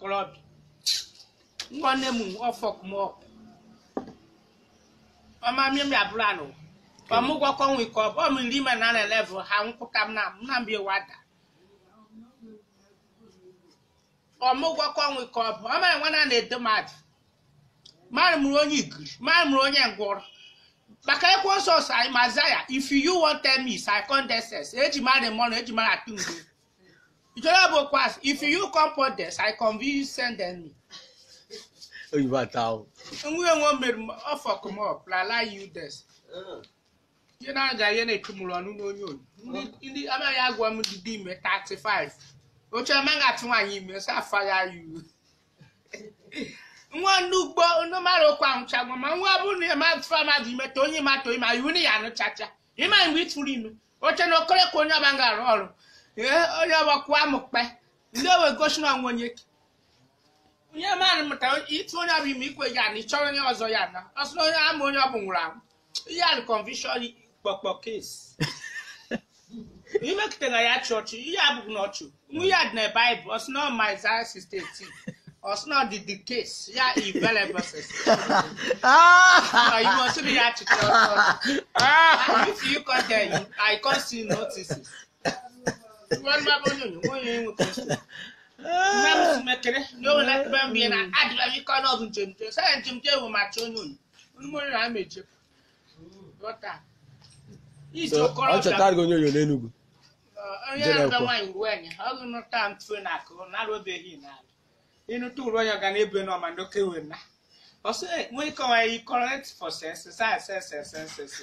okorobịa nwa nne m ọfọkmọp ọmamim ya bụrụ anụ ọmụgwọkọ nwe na na level ha nkwụka m na nnamdi wada na na-edo mmadụ mmadụ onye igiri mmadụ mụrụ onye ngwọrọ maka ekwe nsọ anyị if you want tell me is i condescend eji mmadụ mọnụ eji ma Jọlọbụ kwas, if you come for this, I convince you send them me. Oyibo ata o. Nwa enwe mere ọfọ come up, lala you this. Uh. Ihe na-aga ihe na-echu mụrụ ọnụ n'onye onye. Ndị uh. amaghị agwa m dị ime 35. Oche amaghị atụ nwaanyị ime, so afagha you. Nwa ndị ugbo ndị mmadụ ụkwa nwụchagwa ma nwa bụrụ na ịma atụfa mmadụ ime ta onye matụ ma iwu na ya anụchacha. Ịma mgbe ị tụrụ ime, oche na okorekwa onye ọba ga-arụ ọrụ. onye ọgbakwa amụkpe ndị owe gosi na onwe onye mmadụ mụtara ịtụ onye ọbụ ime ikwe ya na ịchọrọ onye ọzọ ya na ọsọ onye ama onye ọbụ nwụrụ anwụ ihe a kọnvishọn kpọkpọ kes imekụtara ya chọọchị ihe abụghị n'ọchụ nwa ya dị na baịbụl ọsọ na ọma Isaiah 6:18 Osno did the case. Yeah, he very verses. Ah, you must be at it. If you can't tell I can't see notices. nne m si nwere na o nwere ebe m bie na adịla m ike n'ọdụ njem njem sanya njem njem ewu macha onye onye mmiri na meje ọchọtara gị onye onyo n'Enugwu onye na-ebe nwaanyị ruo enyi ọ gụ nụta ntụ na akụ narụbeghị n'ala ịnụta uru onye ọ ga na-ebe n'ọma wee na ọsọ nwee ike onwe ya correct for sense sense sense sense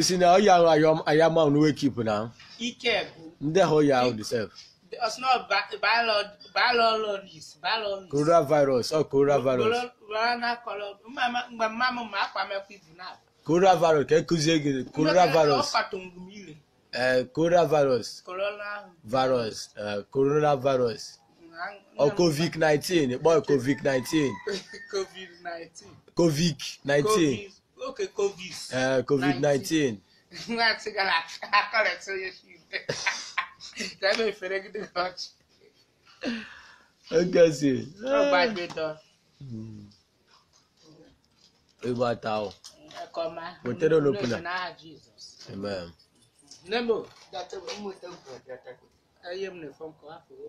You na now young I am I am on wake keep now. He kept. There how you how deserve. It's not biologics, biologics. Oh, corona virus. coronavirus. Coronavirus. My mama, my family people now. Coronavirus. Can you give me coronavirus? Uh, coronavirus. Corona. Virus. Corona eh, Corona Corona virus. virus. virus. Corona virus. Or oh, COVID nineteen. Boy, COVID nineteen. COVID nineteen. COVID nineteen okay covid. Uh, covid nineteen. nwa ti gara akọrọ tí yẹ fi dẹ jẹbi ìfẹrẹ gidi kan jù. ó gẹ̀ẹ́sì. ó gbàgbé dán. ìwà àtàwọn. ẹ̀kọ́ máa. kò tẹ́lẹ̀ olópinna. amen. ẹyẹ mi nìfọn kọ àfọwọ́.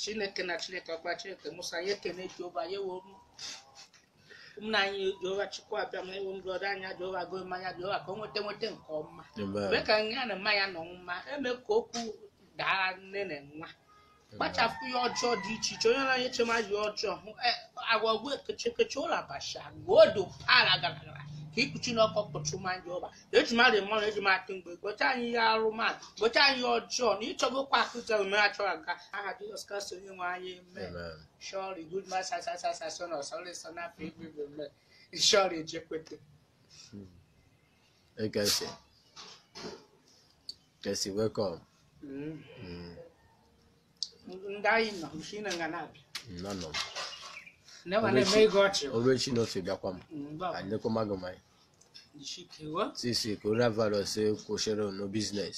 chineke na chineke ọkpa chineke musa yekene jehova yewo mu. ụmụnna anyị Jehova Chukwu abịa ịwụ ewu mbrodo anya Jehova go mmanya Jehova ka o nweta nweta nke ọma mee ka nya na mmanya nọ mma eme ka okwu daa nne na nwa kpachapụ ihe ọjọọ dị iche iche onye na-anye chema ji ọjọọ hụ e, agwa gwe ụlọ abacha odo ala gara gara ka ikpuchi n'ọkọ kpọchu ma ndị ọba eji mmadụ na eji matụ mgbe gocha anyị ihe arụ mmadụ gocha anyị ihe ọjọọ na ịchọgokwa akụzi omume a chọrọ aga aha jizọs kraịst onye nwe anyị eme shọri gud ma sasasasaso na ọsọlịsọ n'afọ igwe shọri ejekwete hmm. Hey, ekesi Kelsey, welcome. Mm. o ndaina mushina nganapi no no nevane meigochewa olwechinotsidakwa mm, anekomagomai ndishikewa sisi kurava lose kushero no business